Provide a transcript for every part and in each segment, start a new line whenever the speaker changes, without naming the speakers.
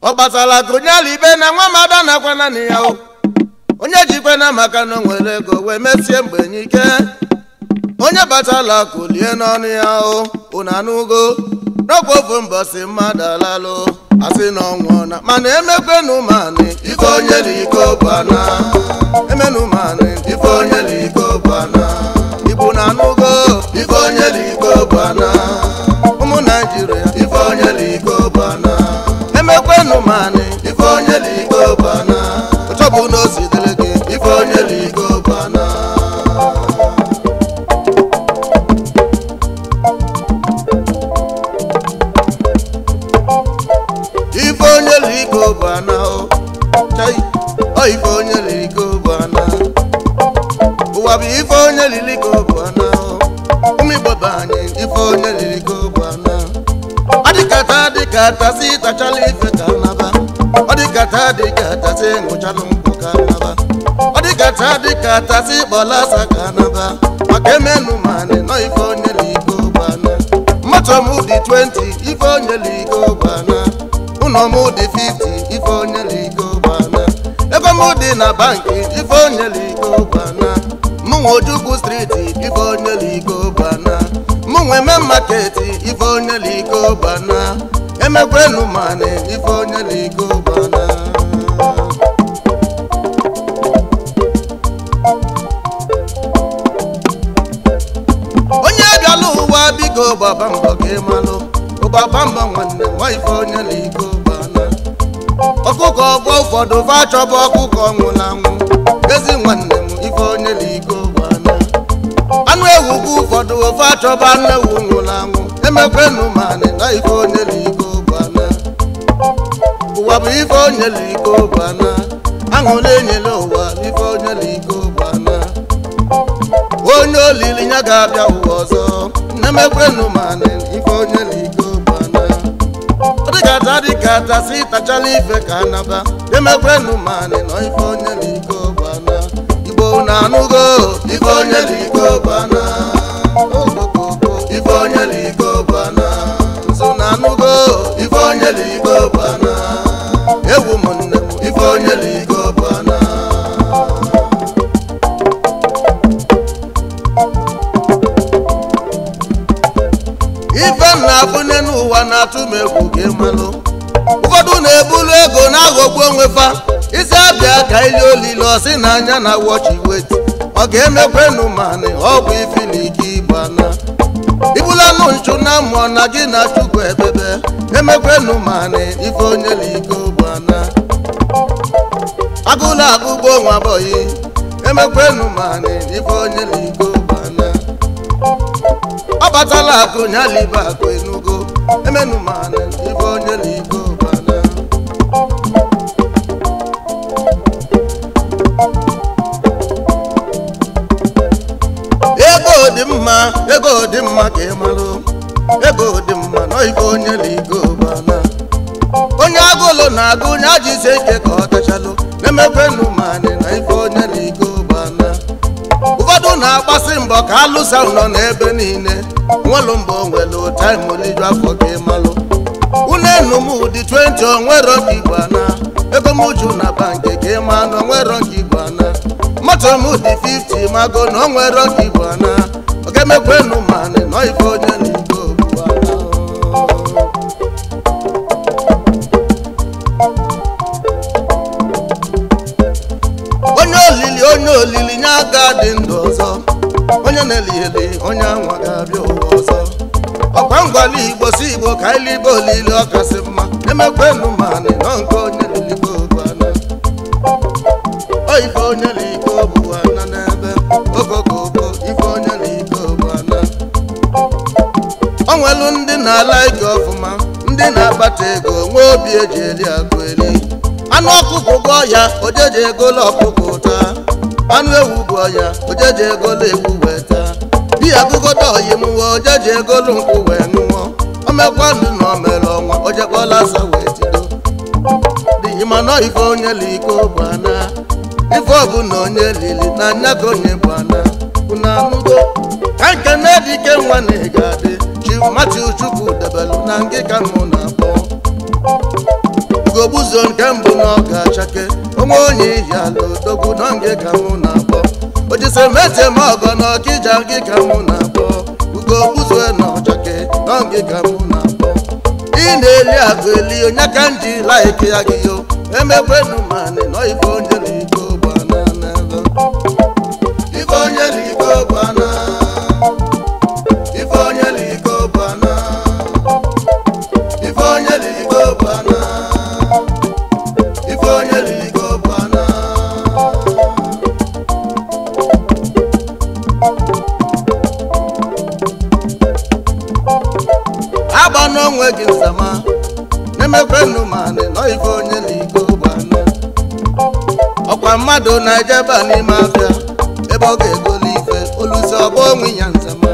ọ kpatala ka onye ala ibe na nwa na nakwa naanị ya onye jikwe na maka na o nwere ego wee mesie mgbe n'ike onye batala kulie n'ọnụ ya unu anụgo n'ọkwa ofu si mmadụ alalụ asị na ọnwụ na mana emekwenumani ife onye n'iko bana emenumani ife onye n'iko bana ibu na anụgo ife onye n'iko bana ụmụ naijiria ife onye n'iko bana emekwenu manị ife onye ligbo bana ọchọbụ na ozitere gị ife onye ligbo bana ife onye bana ife onye bana ụwa bụ ife onye liligbo bana ụmụ bụ ife onye taa dịka tasị tachala ife kanaba. ọ dịka taa dịka tasị ṅụchalụ nkwụ ka ọ dịka taa dịka tasị kpọlasa ka maka emenụ ma nọ ife onyela iko gbana dị 20 ife onyela iko gbana ụlọ dị 50 ife onyela na banki, ife onyela iko striti onwe maketi ife onye liko bana emekwenu mane ife onye liko bana onye bịala ụwa biko gbaba mbọ gị malụ ụgbaba mbọ nwanne nwa ife onye liko bana ọkụkọ ọgbọ ụfọdụ fa achọba ọkụkọ nwụrụ anwụ ezi nwanne mgbe ụfọdụ ofe achọba nne wunwụla anwụ emekwenu ma na ife onye iko bana ụwa bụ ife onye iko bana aṅụ na-enyela ụwa ife onye iko bana onye olili ya ga-abịa ụwa ọzọ emekwenu ma anị ife onye iko bana dịkata dịkata si tachala ife ka naba emekwenu ma anị nọ ife onye iko bana igbo na anụgo ife onye iko bana ife onye ife onye ewu m nne ife onye m n'ụwa na-atụ m egwu gị ụfọdụ na-ebulu ego na-aghọgbu onwe fa isi abịa ka ili olile ọsị na anya na wọchi weti ọ ga-emekwenụ manị ọ ifili ụnụ nchụ na mmụọ na gị na chukwu ebebe emekwenu mana ife onye liko bụ ana agụla agụgbo nwa bọyị emekwenu mana ife onye liko bụ ana ọ batala akụ nyaliba akụ enugo emenu mana ife onye liko ego dị mma ego dị mma ka onye ligobana onye agụlụ na-agụ onye ajise ike ka ọ tachalụ na-emekwenụ manị na ife onye ligobana ụfọdụ na-akpasị mbọ ka alụsa nọ n'ebe niile nwelụ mbọ nwelụ taimoliju afọ gị malụ unenum ụdị 20 onwero nke igbana ego m na banki ka ịma na onwero nke igbana moto m dị 50 mago na onwero nke igbana ọ ga-emekwenụ manị na ife onye ligobana ga ndụ ọzọ onye na-eligheli onye anwa ga-abịa ụwa ọzọ ọkwa ngwala igbo si igbo ka iligbo olili ọkasị mma emekwenụ manị nọ nke onye liligbo bụ ana oyife onye ligbo bụ ana n'ebe ogogogo ife onye ligbo bụ ana o nwelu ndị na-ala ike ọfụma ndị na-akpata ego nwee obi eji eli agụ eli anụ ọkụkụ gụọ ya ojeji egolo ọkụkụ anụ ewu bụ ọya ojeji egolu ewu weta taa biya bụgodo oyi mụwa ojeji egolu nkwụ wee ṅụọ omekwanụ na omere ọnwa ojekwala asa wee tido dị mana ife onye liko bụ ana ife ọbụla onye lili na anya ka onye bụ ana unu anụgo ka nke na-edike nwa na ị ga-adị chimati chukwu debelu na ngịka mụ na ogbuzo nke mbụ na ọ ga-achake onwe onye ihi ala odogwu na nge ka mụ na-akpọ ojisemete ma ọgọ na ọkija gị ka mụ na-akpọ ugo ogbuzo na ọchake na nge ka mụ na-akpọ ị na-eli agụ eli onye aka m ji laiki ya gị yo emekwenu manị nọ ife onye na igbo mmadụ na-ejeba n'ime abịa ebe ọ ga-egoli ife oluzi ọgba onwe ya nzama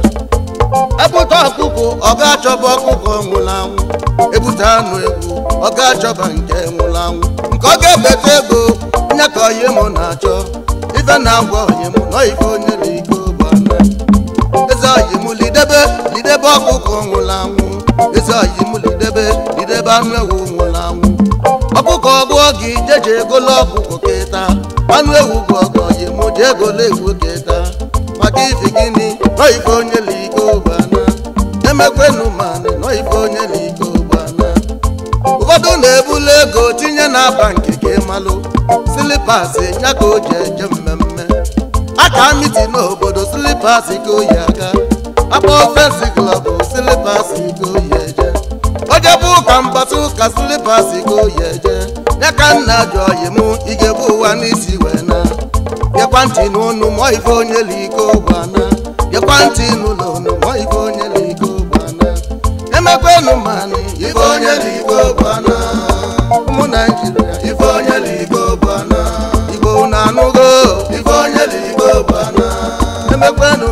ebute ọkụkọ ọ ga-achọba ọkụkụ nwụrụ anwụ ebute anụ egwu ọ ga-achọba nke nwụrụ anwụ nke ọ ga-ebeta ego nye ka onye m na-achọ ife na-agwa onye mụ nọ ife onye na ike ụgbọala eze oyi mụ lidebe lidebe nwụrụ anwụ eze oyi mụ lidebe lidebe anụ ewu nwụrụ anwụ ọkụkụ ọgwụ gị jeje egolo ọkụkọ kịta anụ ewu bụ ọgọji mụji ego legwu keta maka iji gịnị nọ ife onye liko ụbana emekwenu manị nọ ife onye liko ụbana ụfọdụ na-ebulu ego tinye na aba nke gị malụ silipas ya ka o ji eje mmemme aka miti n'obodo silipas ka oyi aga akpa ofensi klọb silipas ka oyi eje ojebe ụka mgbata ụka silipas ka oyi eje ya nna ji oyi m ị ga-ebu ụwa n'isi bịakwantinụ unu mụọ ife onye liko gbana bịakwantinụ ụlọ unu mụọ ife onye liko gbana emekwenụ manị ife onye liko gbana ụmụ naijiria ife onye liko gbana igbo na anụgo ife onye liko gbana emekwenụ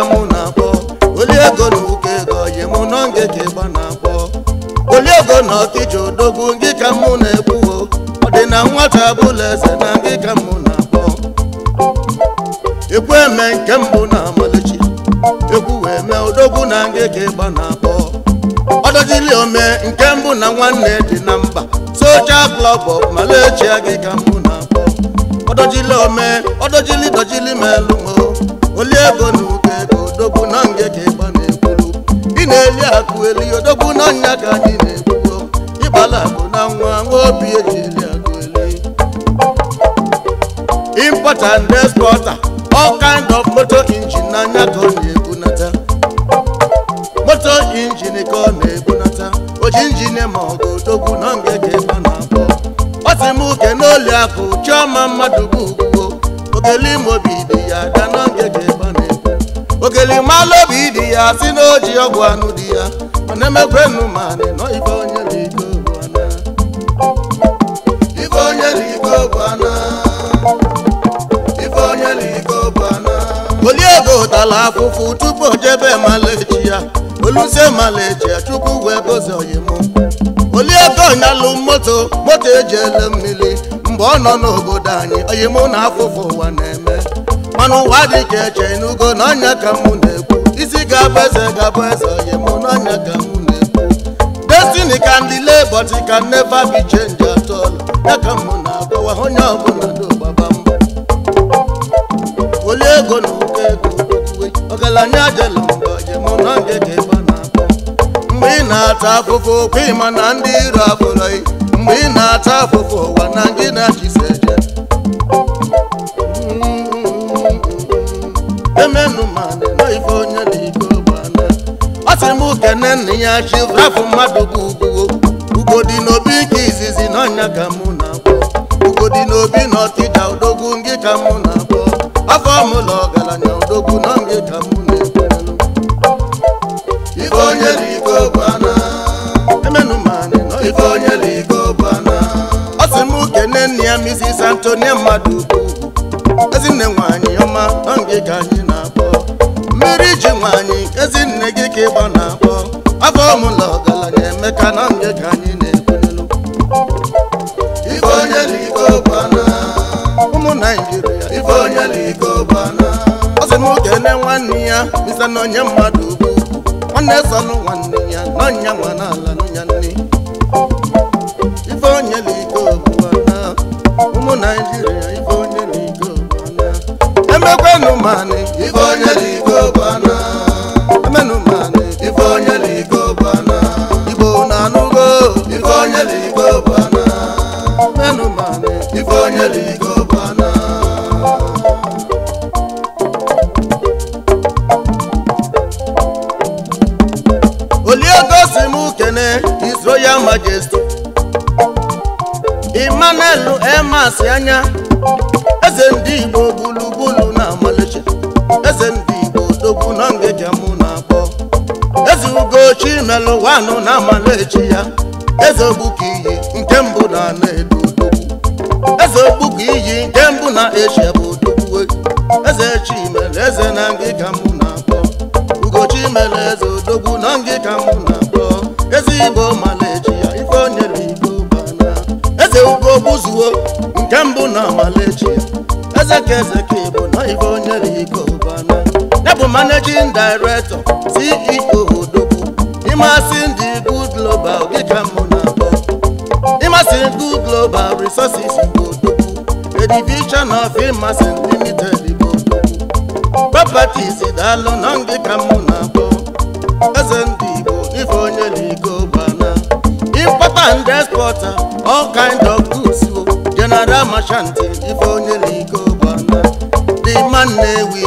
ka mụ na-akpọ oli ego na ụka ego mụ nọ nge ka ịgba na-akpọ oli na ọkịja odogwu ngị ka mụ na-ekwuo ọ dị na nwata abụla eze na ngị ka mụ na-akpọ ekwu eme nke mbụ na ekwu wee mee odogwu na ịgba na-akpọ ọdọjili ome nke mbụ na nwanne dị na mba socha klọb gị ka mụ na-akpọ ọdọjili ome ọdọjili dọjili melụ oli ego na ego odogwu na nge ka ịgba na-ekwuru ị na-eli akụ eli odogwu na nya ka anyị na-ekwuru ịgbala akụ na nwa nwa obi eji eli akụ eli impota and exporter all kind of motor engine na anya ka ọ na-ebunata moto injin ka ọ na-ebunata oji injin ma ọ ga odogwu na nge ka ịgba na abụọ ọ sị m uke n'oli akụ chiọma mmadụ bụ elimobi dị ya ada n'oge ji gba na-ekwu ogelimalụ obi dị ya si na oji ọgwụ anụ dị ya mana emekwenu ma na ibe onye bụ iko bụ ibe onye bụ iko bụ ana ibe onye bụ iko bụ ana oliego tala afụfụ tupu o jebe malaechi ya oluse malaechi ya chukwu wee gozi oyimụ oliego nyalụ moto moto eji ele mmiri mgbe ọ nọ n'obodo anyị oyi mụ na afụfụ ụwa na-eme mana ụwa dị ka eche n'ugo na ọnya ka mụ na-ekwu isi ga-abụ eze ga-abụ eze oyi mụ na ọnya ka mụ na-ekwu destiny can delay but it can never be changed at ya ka mụ na-agbawa onye ọbụla n'ogbaba mbụ woli ego na ụkọ ego ọgaranya jela mgbe oyi mụ na oge ga-ebe na-akpọ mgbe ị na-ata afụfụ okwu ịma na ndị iro abụrọghị mgbe ị na-ata ụwa na ndị na-achịsa eje mm-hmm. onye na m ya chifrafụ mmadụ bụ ugo ugo n'obi nke izizi n'ọnya ka mụ na-akpọ ugo dị n'obi na ọtịja mụ na-akpọ afọ ọgaranya na ka mụ ya Mrs. Antonia Madubu ezinne nwanyị ọma na nke ka anyị na-akpọ mmiri ji nwanyị ezinne gị ka ịgba na-akpọ afọ ọmụla ọgaranya emeka na nke ka na-ekwunelu ife onye liko ọ na okene nwanne ya bisa na onye mmadụ ugwu nwanne sọnụ ya na ọnya manes ụwa anọ na amala ya eze ogbuka iyi nke mbụ na ana edo eze ogbuka iyi nke mbụ na eshia bụ odogwu eze chimere eze na ngịga mụ na-akpọ ugochi mere eze odogwu na ngịga mụ na-akpọ eze igbo mala ya ife onyere igbo bana eze ugo gbuzuo nke mbụ na amala ya eze ka eze ka ịbụ na ife onyere igbo bana ya bụ managing ịmasị ndị Good Global dịka mụ na-akpọ ndị Good Global Resources bụ odogwu a division of ịmasị limited bụ odogwu properties daalụ nọ dịka mụ na eze ndị Igbo ife onye import and export all kind of goods general merchant ife onye n'iko gbana Nnewi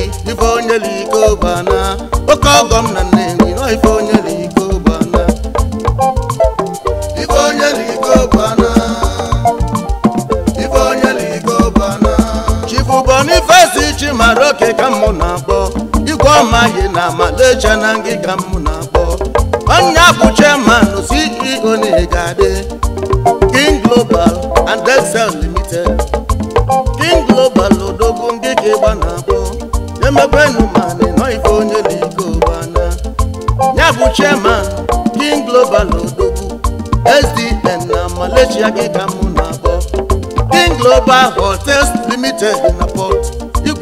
onye na Aroke ka mụ na-akpọ igwe ọmaghị na Malaysia na ka mụ na-akpọ onye abụ chairman CEO na adị King Global and Dexel Limited King Global odogwu ka ịgba na-akpọ emekwenụ mana nọ ife onye na ike ụgbana ya bụ King Global odogwu oh, SDN na Malaysia gịga mụ na-akpọ King Global Hotels Limited na Port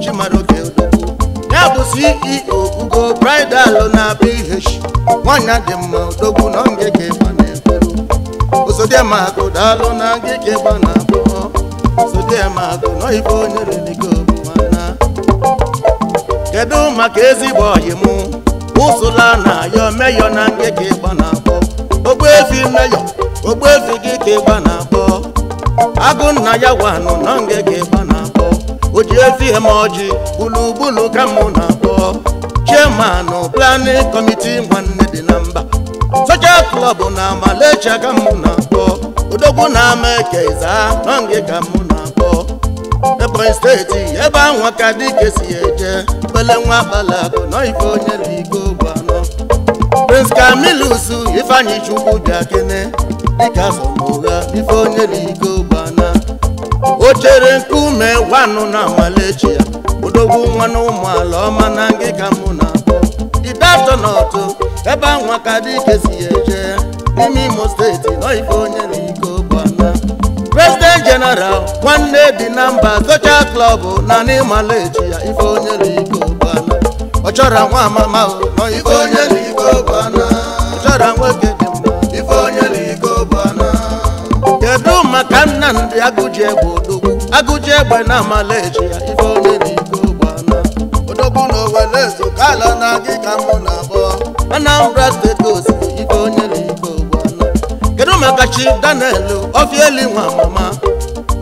chi mara ya bụ ceo ugo bridal na bh nwanyị dị mma odogwu na ngịga ịgba na-eberu ozodiema agụ daalụ na ngịga ịgba na abụọ ozodiema onye mana kedu maka ezigbo ọyị ụsụla na ayọ meyọ na ngịga ịgba na abụọ ogbuefi meyọ ogbuefi gị ka na abụọ agụ nna ya wanụ na o ji ezi eme ọjị gburugburu ka mụ na-akpọ chimanụ planin kọmiti nwanne dị na mba socha klọb na malecha ka mụ na-akpọ odogwu na ama ekeza nọnge ka mụ na-akpọ ebonyi steeti ebe anwa ka dike si eje kpele nwa akụ nọ ife onye ligo gbanọ prince kamilus ifeanyi chukwu bịa kene dịka sọmụgha ife onye ligo o chere nkume gwanụ na nwalechi ya odogwu nwanụ ụmụala ọma na ngịka mụ na abụọ didatọ n'ọtụ ebe anwa ka dị dike ya eje n'ime imo steeti nọife onye na iko bana president general nwanne dị na mba social club na n'ịmalechi ya ife onye na iko bana ọ chọrọ nwa amama nọife onye na iko bana ọ chọrọ nwoke dị ife onye na iko bana kedu maka nna ndị agụji egwu odo agụji egbe na amala eji ya ife onye na iko gbana odogwu na owere ezo ka ala na gị ka mụ na abụọ Anambra steeti osiri ife onye na iko gbana kedu maka chi Daniel Ofieli nwa mama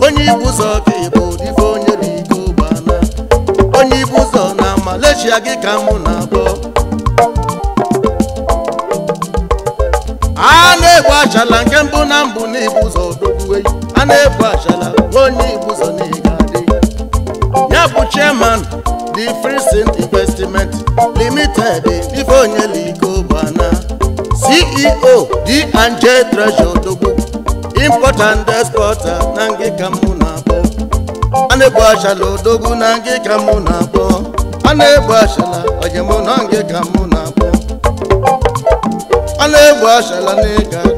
onye ibu ụzọ ka ịbụ ife onye na iko gbana onye ibu ụzọ na amala ya gị ka mụ na abụọ a na-egbu achala nke mbụ na mbụ na ibu ụzọ odogwu eyi a na-ebu achala onye ibuso n'iga adị ya Ya bụ chairman the Free Investment Limited Ifeonyelike Ubana CEO D&J Treasure Odogwu import and export na ngịka mụ na-abọ a na-ebu achala odogwu na ngịka mụ na-abọ a na-ebu achala ọjemụ na ngịka mụ na-abọ a na-ebu achala n'ịga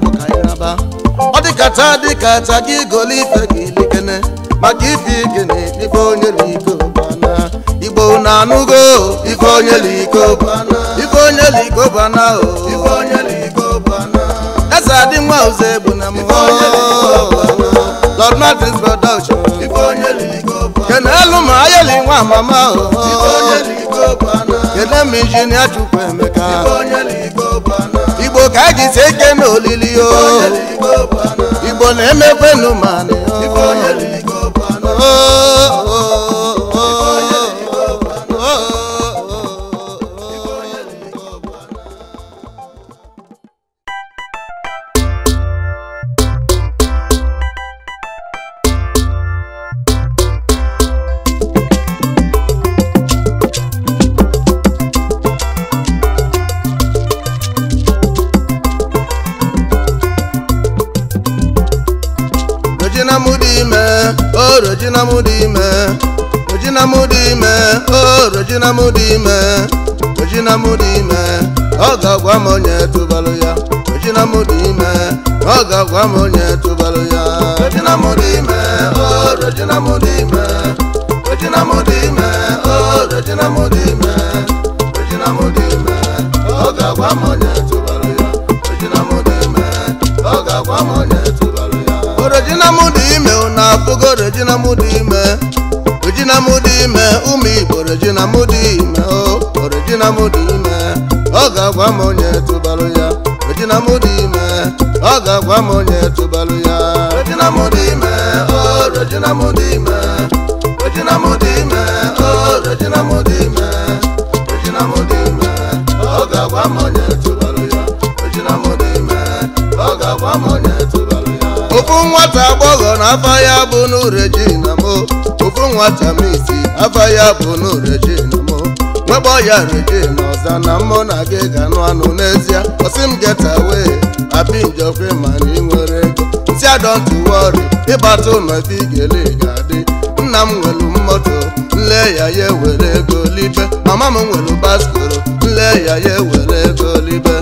kacha dị acha gị golo ife gị likene maka ife igene ife onye liko bana igbo na anụgo ife onye liko bana ife onye liko bana o ife onye liko bana eze adị nwa ụzọ egbu na mụọ Lord Martin's production ife onye liko bana kene elu ma ayeli nwa mama o ife onye liko bana kene m injinia Chukwu Emeka ife onye liko bana igbo ka a ji sie ike n'olili o Igbo na-emekwenụ ma n'orejina mo ofu nwata miti afa ya bụ n'orejina mo nwegbo ya rejina ọza na mụ na gị ga-anụ anụ n'ezie ọsị m geta wee abinjokwe mana ị nwere ego ntị adọntị wọrị ịgbata ụlọ ebe ị ga-ele ga-adị nna m nwelu mmoto nle ya ya ewere ego libe mama m nwelu baskoro nle ya ya ewere ego libe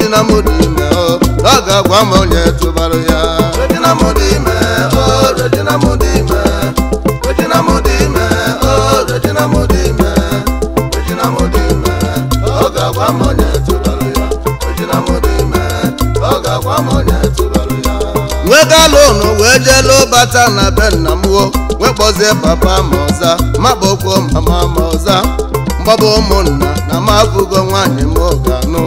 ejina m dị ime ọ ga-agwa m onye tụbara ya aka lonu wee jelu bata na be nna m wo wee kpọzie papa ma ọza makpọkwo mama ma ọza mgbaba ụmụnna na m abụgo nwaanyị m anụ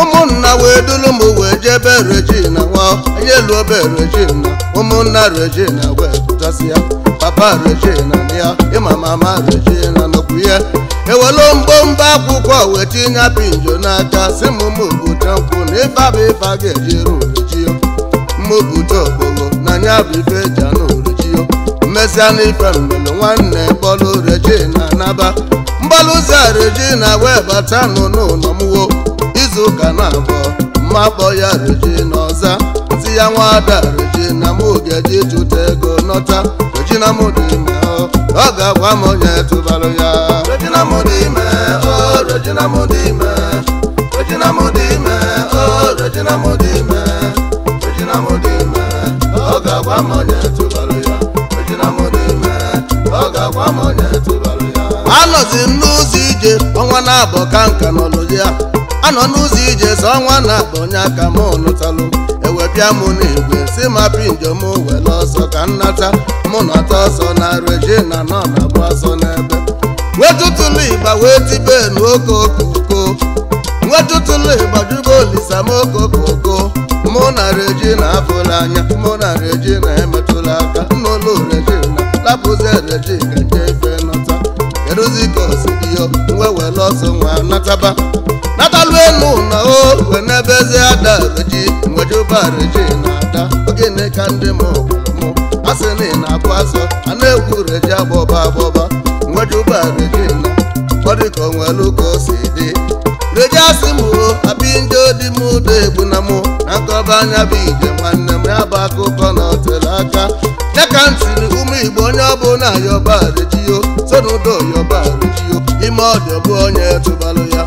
ụmụnna wee dulu m wee jee jebe regina nwa onye luo be regina ụmụnna regina wee pụtasị ya papa regina na ya ịma mama regina nọkwu ya ewelu mgbomba akwụkwọ wee tinye pinjo n'aka si m ụmụ obodo nkwụ na ịba bụ ịba ga-eji ya. mobutogbogo na anya bụ ife eji anụ orejio mmesịa na ife mbelu nwanne bọlụ reji na naba mbalụza reji na wee bata n'ụlọmwo izuụka na abụọ mma kpọ ya reji na ọza si ya nwada reji na m ogeji jụta ego nọta reji na mụ dị ime ọ ga-agwa m onye tụbarụ ya reji na mụ dị ime o reji na mụ dị ime reji na mụ dị ime o reji na mụ dị ime ga anọzi m n'ụzọ ije ọnwa na-abọ ka nka n'ọlụ ya anọ n'ụzọ ije so ọnwa na-abọ onye aka m lụtalụ ewebịa m n'igwe si mapi njem were ọsọ ka nnata mụ nọta ọsọ na regina nọ na-agba ọsọ n'ebe nwetụtụlụ ịgba wee tibe n'oke okoko nwetụtụlụ ịgbajugo olisa m okoko na abụla anya mụ na regina emetụla aka n'ụlọ regina lapụzi regina nje ife nọta keduzi ka osi dị osidiyo wewere ọsọ nwa nataba natalụ enu na o we n'ebe eze ada reji nwejuba na ada ogene ka ndị m mụ asị na ị na-akwa asọ a na-egwu reji agbọba agbọba nwejuba regina ọ dị ka onwelu ka o si dị reji asị m o abi ndị odi m ụda egbu na mụ akọba anya bụ ije nwanne m ya bụ akụkọ na ọtere aka ya ka m tiri ụmụ igbo onye ọbụla yọbarejio yọba yọbarejio ime ọdịbụ onye tụbalụ ya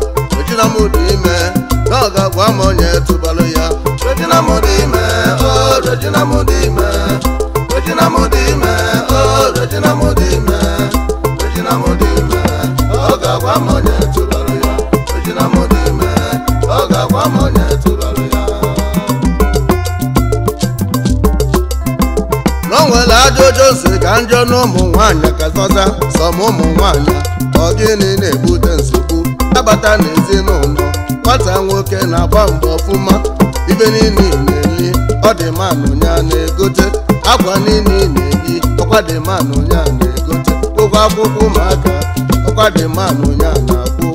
dị ime na ọ ga-agwa m onye tụbalụ ya dị ime o oh, dị ime njọ na ụmụ nwanyị katọta sọm ụmụ nwanyị ọ gịnị na-ebute nsogbu abata n'ezinụlọ nwata nwoke na-agba mgbe ọfụma ibe niile na-eyi ọ dị manụ ya na-egote akwa niile na-eyi ọkwa dị manụ ya na-egote ụgwọ akwụkwọ ụmụaka ọkwa dị manụ ya na-akwụ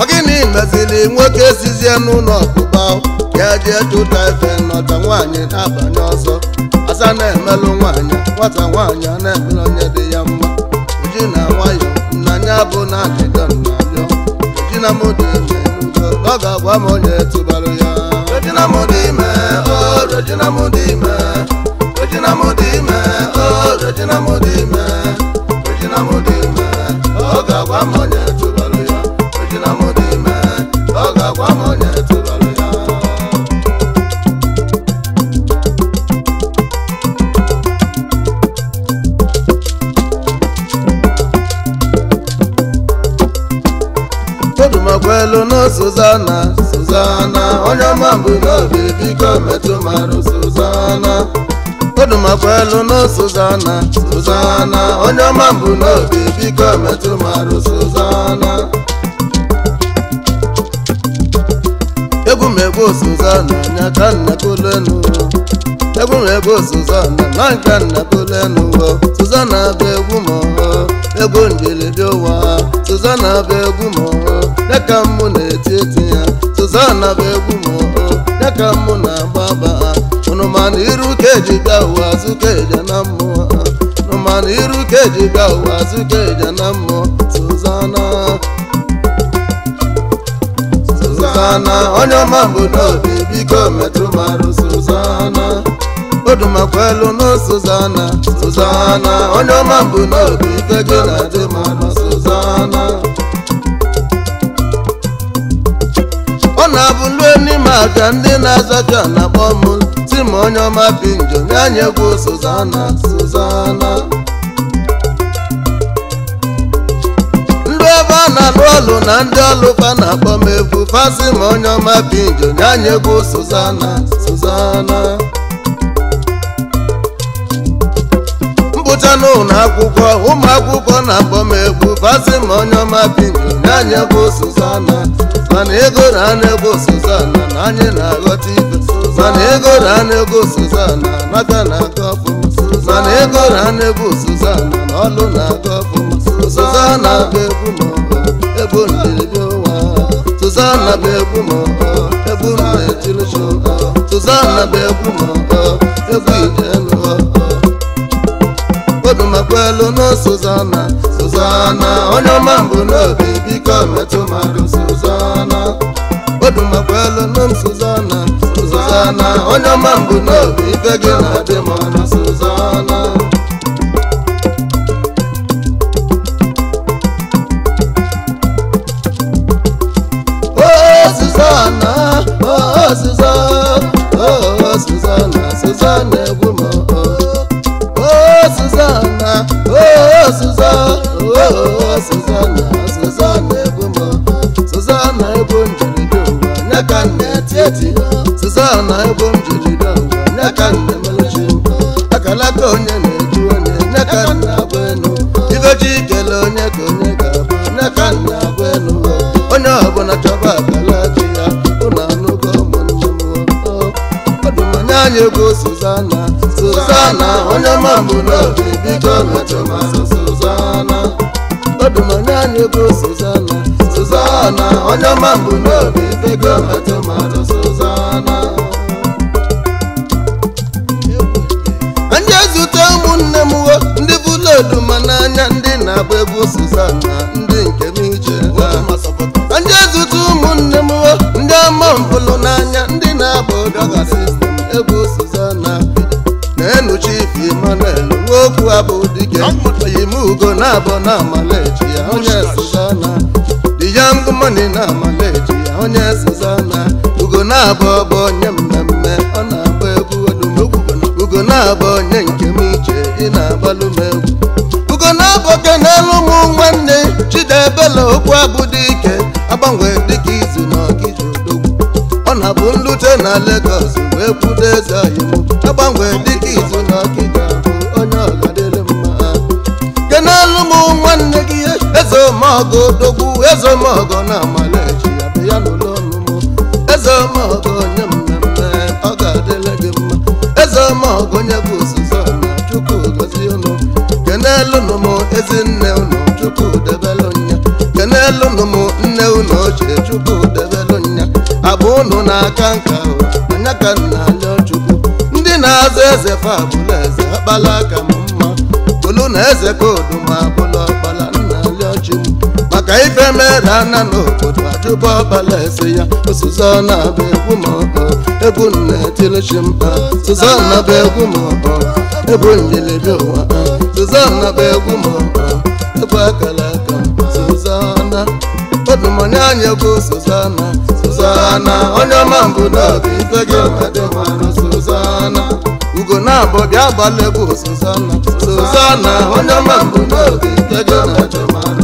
ọ gịnị meziri nwoke sizie n'ụlọ ọkpụkpa ya etu tụta efe nọta nwaanyị na-abanye ọzọ asa na-emelụ nwaanyị nwata nwaanyị a na-emere onye dị ya mma uju na nwayọ nnanya bụ na ajịdọ nnabịọ ejina m dị ime ọ ga-agwa m onye tụbarụ ya ọ m dị ime ọkwelu na Suzana Suzana onye ọma mbụ n'obi biko metụ marụ Suzana egwumegwu Suzana nyaka nnakolenu egwumegwu Suzana na nka nnakolenu Suzana bụ egwu mọọ egwu njelede ụwa Suzana bụ egwu mọọ ya ka mụ na-eti eti ya Suzana bụ egwu mọọ ya ka mụ na-agbaba nụmanụ iru keji bịa ụwa azụ keja na mmụọ nụmanụ iru keji bịa ụwa keja na mmụọ Suzana Suzana onye ọma mbụ n'obi biko metụ marụ Suzana odumakwelu na Suzana Suzana onye ọma mbụ n'obi ike na-adị marụ Suzana ọ na-abụ n'ime aka ndị na-azọ ka na-akpọ ma onye ọma bi njọ nye anyị egwu Suzana Suzana ndị ebe a na-alụ ọlụ na ndị ọlụ fa na-akpọ m egwu fasi ma onye ọma bi njọ nye anyị egwu Suzana Suzana n'ụlọ akwụkwọ ụmụ akwụkwọ na-akpọ m egwu fasi ma onye ọma bi njọ nye anyị egwu Suzana mana ego na na-egwu Suzana na anyị na-aghọta ibe mana ego rana ego suzana nata na-aga ọfụma mana ego rana ego suzana na ọlụ na-aga ọfụma suzana bụ egwu maọbụ egwu ndebi ụwa suzana bụ egwu maọbụ egwu ndejiri chụka suzana bụ egwu maọbụ egwu idelu obimakwelu na suzana suzana onye ọma mbụ n'obi biko metụ mmadụ suzana obimakwelu na suzana na onye ọma mbụ n'obi ibe gị na-adị ma na-asụ ụzọ onye ọma mbụ n'obi bego metụ mmadụ sụzana ndị ezute ụmụnne m ho ndị bụlodu oduma n'anya ndị na-agba egwu suzana ndị nke m ije anya zute ụmụnne m ho ndị ọma mbụlụ n'anya ndị na-agba odoga sistem egwu suzana na-enu chief Emmanuel nwa okwu abụ dike oyim ugo na abụ na amalechi ya onye money na amaeji onye sezona ugo na-abụ bụ onye mmemme ọ na-agba egwu odumegwu ugo na-abụ onye nke m iche ị na-agbalụ m egwu ugo na-abụ oge n'elu ụmụ nwanne chidebela okwu abụ dị ike agbanwe dịka izu na ọgịji odogwu ọ na-abụ nlute na Lagos wee kwudo eze ọhịa agbanwe dịka eze mọgọ na amalechi abịa ya n'ụlọ ọnụmụ eze mọgọ onye mmemme ọ ga-adịle gị mma nye mọgọ onye bụ ozuzo na chukwu gozie ụnụ kenelu ezi nne ụnụ chukwu debelụ nya kenelu nụmụ nne ụnụ ochie chukwu debelụ nya abụ ụnụ na-aka nka anya ka nna alịọ chukwu ndị na-azụ eze fa abụla eze akpala aka mma olu na eze ka oduma abụla ka ife mere ana n'obodo ajụba ọbala eze ya osuzona bụ egwu maọbụ egwu nne tilichimkpa suzona bụ egwu maọbụ egwu mmilibi ụwa suzona bụ egwu maọbụ egwu akara aka suzona odumoni anya bụ suzona suzona onye ọma mbụ n'obi ife gị madị mmanụ suzona ugo na-abụ bịa gbala egwu suzona suzona onye ọma mbụ n'obi ife gị madị mmanụ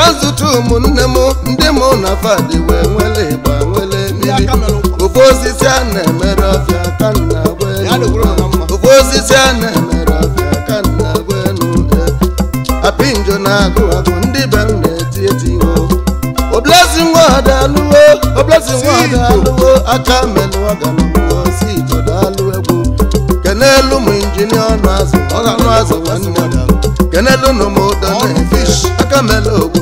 ka zụta ụmụnne m ndị mụ na fadị wee nwele ịgba nwele mmiri ofe osisi a na-emere ọfịa ka nna ofe osisi a na-emere ọfịa ka nna gwa enu apị njọ na-agụ agụ ndị be m na-eti eti ihu oblesi nwa ada alụwo oblesi nwa ada alụwo aka menụ ọganụwo si ijọda alụ egwu kenelu m injinia ọnụ azụ ọnụ azụ nwanne m kenelu nụ m ụdọ na fish aka mele ogbu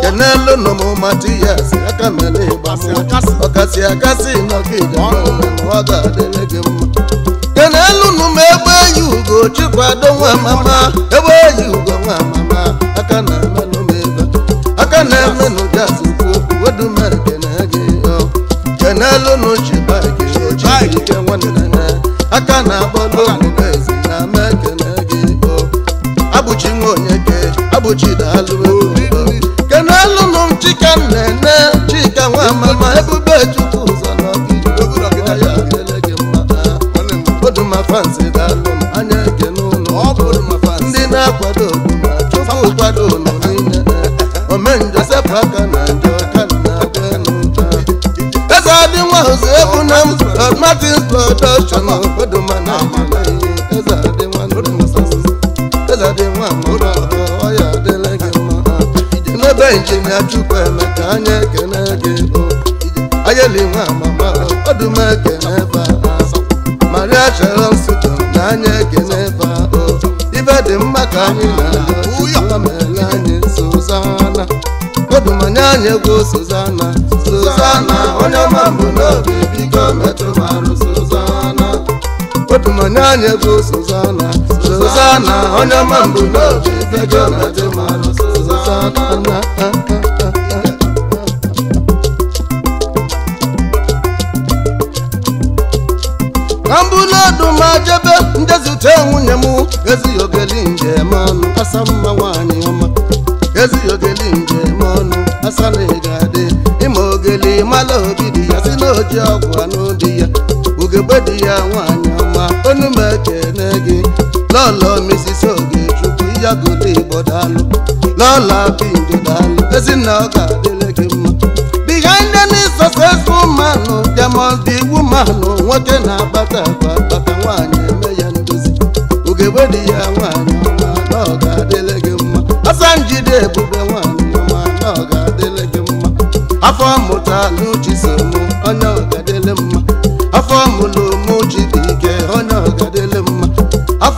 kenelo nomo matiyas akamele bamu ọkasi akasi nọgide ọ ga-adịrị gị mma kenelu nume egbe yi ugo chikwado nwa mama egbe yi ugo nwa mama aka na ọdachi n'obodo mana eze adị nwa eze adị nwa mụrụ ọ ya adịla gị mma n'ebe njem ya chukwu eme ka anyị ekene gị ayeli nwa mama ọdụm ekene ba maria chere nsụtụ na anyị ekene ba ibe dị mma ka anyị na-aga anyị anya anyị dụmanye anya bụ Suzana Suzana onye ọma mbụ n'obi gajọ na dị mara Suzana ka mbụlodu ma jebe ndezute nwunye m ezighị ogeli njem ọnụ asa mma nwaanyị ọma ezighị ogeli njem ọnụ asa na ịga adị ịma ogeli mala dị ya si n'oji ọgwụ anụ di ya ugegbe dị ya nwaanyị Abiagulu Igbo daalụ Lola Bindi daalụ Ezinna ọ ga-adịle gị mma behind ndị n'ịsọsọ man oh, there must oh, nwoke na abata akpa akpata nwaanyị eme ya ndozi ogebe dị ya nwaanyị ọma adịle gị mma Asanjide ebube nwaanyị ọma na adịle gị mma afọ mụta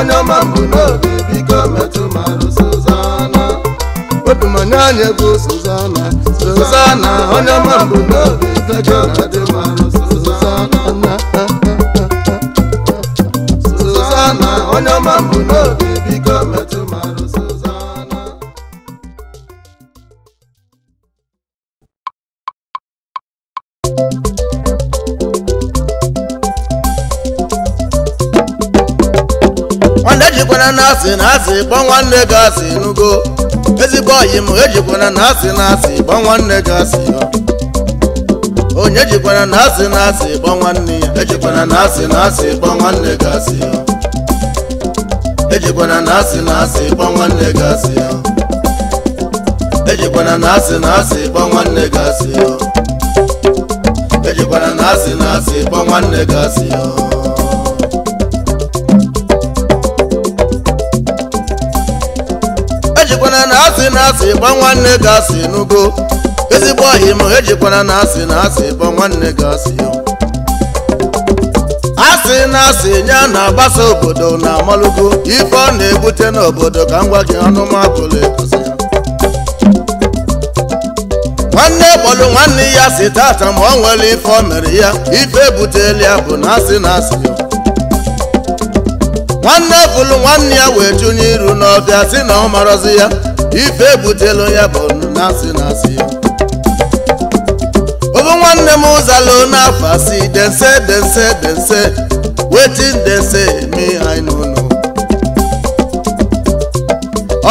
onye ọma mbụ n'oge biko metụ marụ Suzana wepụ manya anya bụ Suzana Suzana onye ọma mbụ n'oge fejọ na dị marụ Suzana Suzana onye ọma mbụ n'oge asị na asị kpọ nwanne gị asị nugo ezigbo oyi m ejikwana na asị na asị kpọ nwanne gị asị onye jikwana na asị na asị kpọ nwanne ya ejikwana na asị na asị kpọ nwanne gị asị ejikwana na asị na asị kpọ nwanne gị asị ejikwana na asị na asị kpọ nwanne gị asị ejikwana na asị na asị kpọ nwanne gị asị ejikwana na asị na asị gba nwanne gasị asị n'ugo ezigbo ọhịma ejikwana na asị na asị gba nwanne gasị asị asị na asị nye na-agbasa obodo na amalugo ife ọ na-ebute n'obodo ka m gwa gị anụmakụlụ ekozi ya nwanne kpọlụ nwanne ya si tata ma ọ nwere ife ọ mere ya ife ebutela ya bụ na asị na asị nwanne pụlụ nwanne ya wee chụ iru n'ọbịa si na ọ marọzi ya ife ebutelu ya bụ na-asị na ya obu nwanne m ụzalụ n'afọ asị dense dense dense wetin dense me anyị n'ụlọ.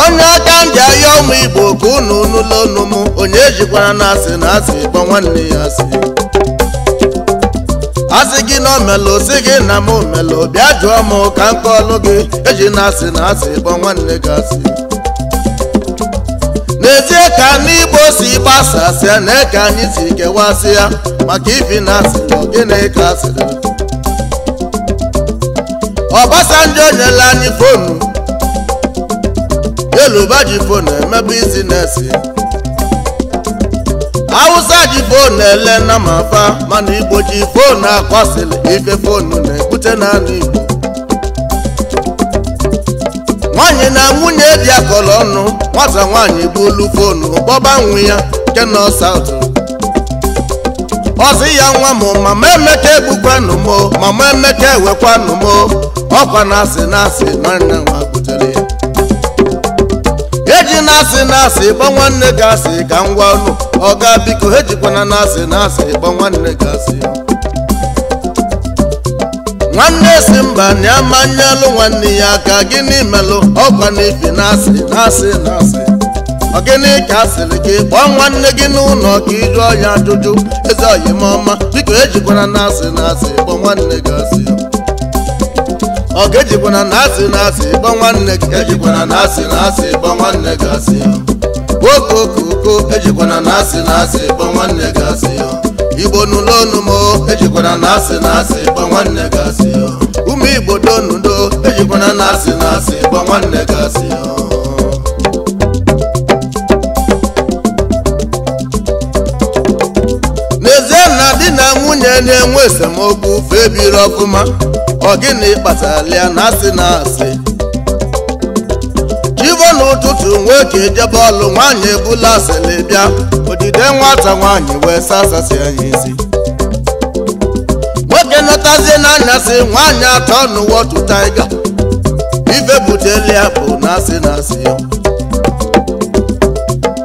onye aka ndị ahịa ụmụ igbo ka unu nụlọ unu m onye ejikwara n'asị n'asị na kpọ nwanne ya asị asị gị na omelu si gị na m omelu bịa jụọ m ka m kọọlụ gị eji na asị na asị kpọ nwanne gị asị n'ezie ka ndị Igbo si gbasasịa na eke anyị si kewasị ya maka ibi na asị na gịnị ka asịrị Obasanjo nyela anyị fonu Yeluba ji fonu emebu isi na-esi awụsa ji ele na mafa mana igbo ji foonu akọsịlị ife na-ebute n'ala igbo nwaanyị na nwunye dị akọlọ ọnụ nwata nwaanyị bulu fonu gbọba ya nke nọ ọsị ya nwa m mama emeka egbukwanụ m mama emeka ewekwanụ m ọkwa na asị na asị nwanne nwa butere ya eji na asị na asị gba nwanne gị asị ka ngwa ọnụ ọga biko ha jikwana na asị na asị ịgba nwanne gị asị nwanne si mba na nwanne ya aka gịnị melụ ọkwa na ibi na asị na asị na asị ọ gịnị ka asịrị gị kpọọ nwanne gị n'ụlọ ka ị jụọ ya ajụjụ eze oyimọma biko ejikwana na asị na asị ịkpọ nwanne gị asị ọ ga-ejikwana na asị na asị ịkpọ nwanne gị ejikwana na asị na asị ịkpọ nwanne gị asị okokoko ejikwana na asị na asị kpọ nwanne gị asị ya igbo n'ụlọ ọnụmụ ejikwana na asị na asị kpọ nwanne gị asị ya Umu igbo donudo ejikwana na asị na asị kpọ nwanne gị asị ya n'ezie na di na nwunye na-enwe esemokwu febiri ọfụma ọ gịnị kpatara ya na asị na asị otu nwoke jebọọlụ bọọlụ nwaanyị ebula asịlị bịa odide nwata nwaanyị wee sasasị anyị isi nwoke nọtazie na asị nwaanyị atọ n'ụwa otu taiga ife buteli bụ na-asị na-asị ya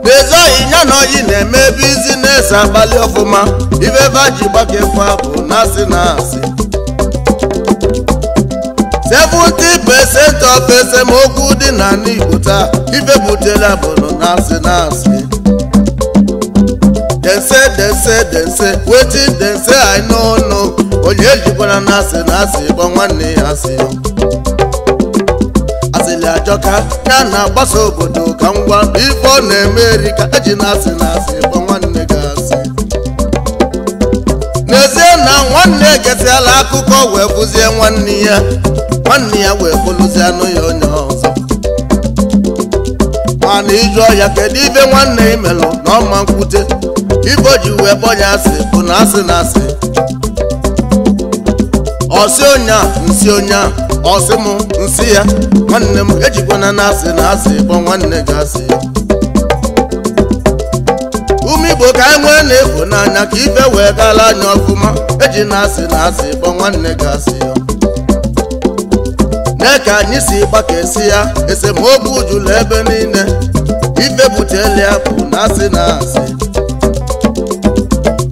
n'ezoghị ya na oyi na-eme ebe izi na-ese abalị ọfụma ife vaji gbakefụ abụ na-asị na-asị 70% of esemokwu dị na n'Igbo taa ife butela bụ na asị na asị dense dense dense wetin dense anyị n'ọnụ onye ejikwara na asị na asị gba nwanne ya asị asịlị ajọka ya na-agbasa obodo ka ngwa ife ọ na-eme eri ka eji na asị na asị gba nwanne gị asị n'ezie na nwanne ekesịala akụkọ wee bụzie nwanne ya nwanne ya wee kpoluzi anụ ya onye ọzọ mana ịjụ ya kedu ibe nwanne imelụ na ọma nkwute ibo ji wee bọ ya asị bụ na asị na asị ọsị onye a nsị onye a ọsị m nsị ya nwanne m ejikwana na asị na asị bọ nwanne gị asị ume igbo ka anyị e nwee na-efu n'anya ka ife wee gaala anya ọfụma eji na asị na asị bọ nwanne gị asị Mee ka anyị si esi ya esemokwu jụrụ ebe niile ife buteli ya bụ na asị na asị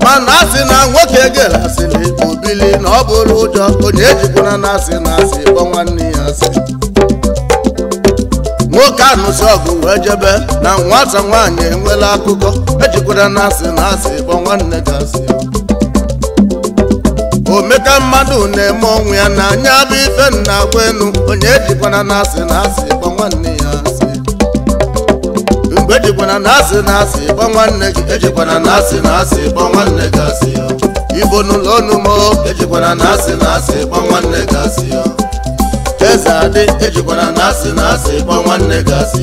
mana asị na nwoke na asịrị obili na ọ bụrụ ụjọ onye ejikwana na asị na asị kpọ nwanne ya asị nwoke anụsi ọgụ wee jebe na nwata nwaanyị enwela akụkọ ejikwara na asị na asị kpọ nwanne gị asị omeka mmadụ na-eme ọnwụ ya na anya bụ ife nna agwa enu onye jikwana na asị na asị gba nwanne ya asị mgbe ejikwana na asị na asị gba nwanne gị ejikwana na asị na asị gba nwanne gị asị ya ibo n'ụlọ ọnụ mo ejikwana na asị na asị gba nwanne gị asị ya eze adị ejikwana na asị na asị gba nwanne gị asị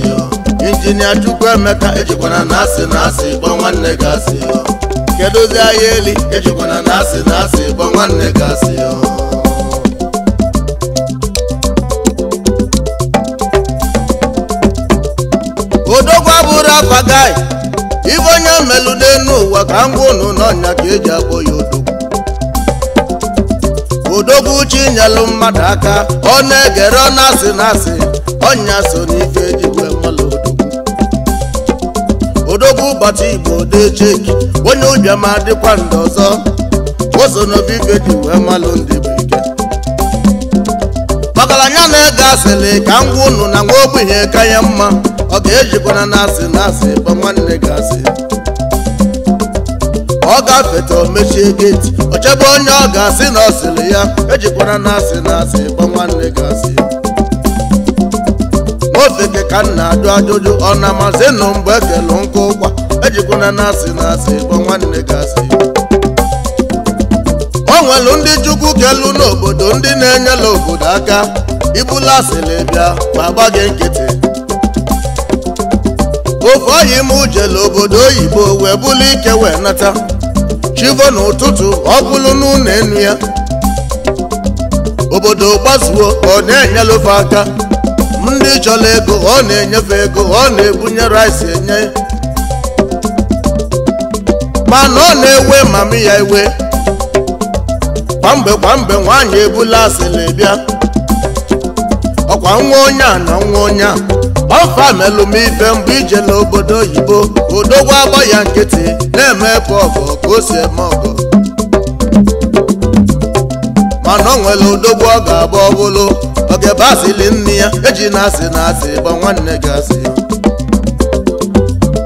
ya injinia chukwu emeka ejikwana na asị na asị gba nwanne gị asị ya kedozi ahịa eli ịchụkwa na nasị nasị bụ nwanne gasị odogwa bụrụ afa gai ibe onye mmelu n'enu ụwa ka ngwa unu n'ọnya ka eji akpọ ya odogwu odogwu uche nyelụ mmadụ aka ọ na-egere ọ na-asị na-asị ọnya so n'ife ji odogwu ụbọchị igbo cheki onye ụbịama dịkwa ndị ọzọ oso n'obibe dị wee malụ ndị bụ ike anya na-ege asịrị ka ngwa ụnụ na nwa ogbenye ka ya mma ọ ga-ejikwana na asị na asị gba nwanne gị asị ọ gafeta mechie geti ochebe onye ọ ga-asị na ọ ya ejikwana na asị na asị gba nwanne gị asị ofe gị ka m na-ajụ ajụjụ ọ na amazi nụ mgbe ekelu nkụ ụgwa ejikwana na asị na asị bụ nwanne gị asị o nwelu ndị chukwu kelu n'obodo ndị na-enyela obodo aka ibula asịlị bịa ma gba gị nkịtị ofe ime m ujele obodo oyibo wee buli ike wee nata chivo n'ụtụtụ ọ bụlụ n'ụlọ enu ya obodo gbazuo ọ na-enyela ofe aka ndị chọrọ ego ọ na-enyefe ego ọ na-ebunye rice enye mana ọ na-ewe mami ya iwe kwamgbe kwamgbe nwaanyị ebula na bịa ọkwa nwa onye a na nwa onye a ọfa melụ ife mgbe ijela obodo oyibo odogwu agba ya nkịtị na-eme ebe ọgọ ka o si eme mana ọ nwere odogwu ọ ga-agba ọbụlụ oge bụ asịlị nne ya eji na asị na asị gba nwanne gị asị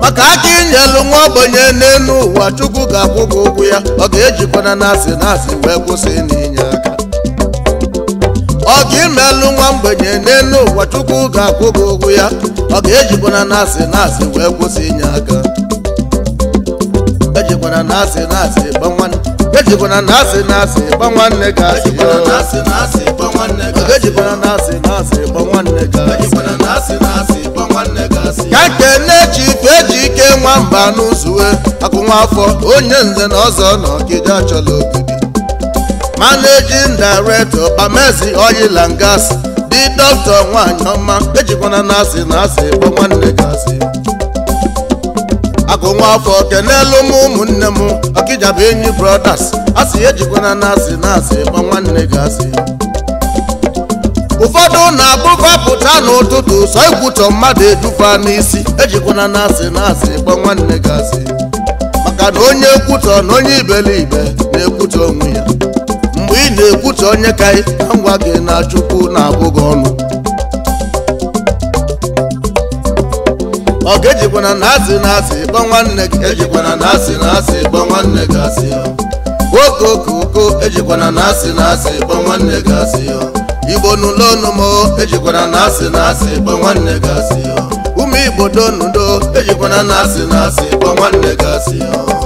maka aka inyelu nwa ogbenye n'elu ụwa chukwu ga-akwụ gị ụgwọ ya ọ ga-ejikwana na asị na asị wee kwụsị n'inye aka ọ ga-imelụ nwa mgbenye n'elu ụwa chukwu ga-akwụ gị ụgwọ ya ọ ga-ejikwana na asị na asị wee kwụsị inye aka ejikwana na asị na asị gbanwa gbanwa na-asị na-asị nne na-asị na asị ejikwana na asị na asị nwanne ka ike nwamba n'ụzụwe onye nze na ọzọ na ọgịga chọrọ ogidi managing Bamezi Oil and dị dọkịta nwanyị ọma ejikwana na asị na asị nwanne gị asị agụnwa afọ kenelu m ụmụnne m ọkịja bụ enyi brọdas, asị ejikwana na asị na nwanne ụfọdụ na-abụvapụta n'ụtụtụ sọ ịkwụchọ mmadụ edufa n'isi ejikwana na asị na asị nwanne gasị maka na onye ekwutọ na onye ibe na-ekwutọ onwe ya mgbe ị na-ekwutọ onye ka ngwa gị na chukwu na-abụghị ọnụ ọ ga igbo n'ụlọ ọnụ m ejikwara na asị na asị gbe nwanne gasị ụmụ igbo donudo ejikwana na asị na asị gbe nwanne gasị